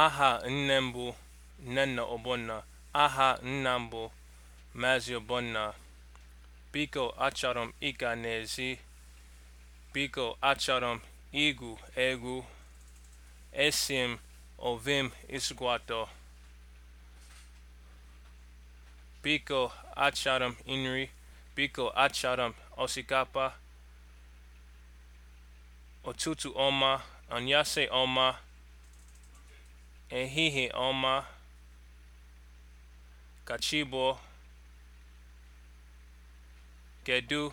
aha nne m bụ Nnenna Ogbonna aha nna mbụ mazi Maazị Ogbonna biko achọrọ m ịga n'ezi biko achọrọ m igwu egwu esi m ovem ịsụkwatọ biko achọrọ m nri biko achọrọ m osikapa ụtụtụ ọma anyasị ọma Ehihie ọma. Ka chi Kedu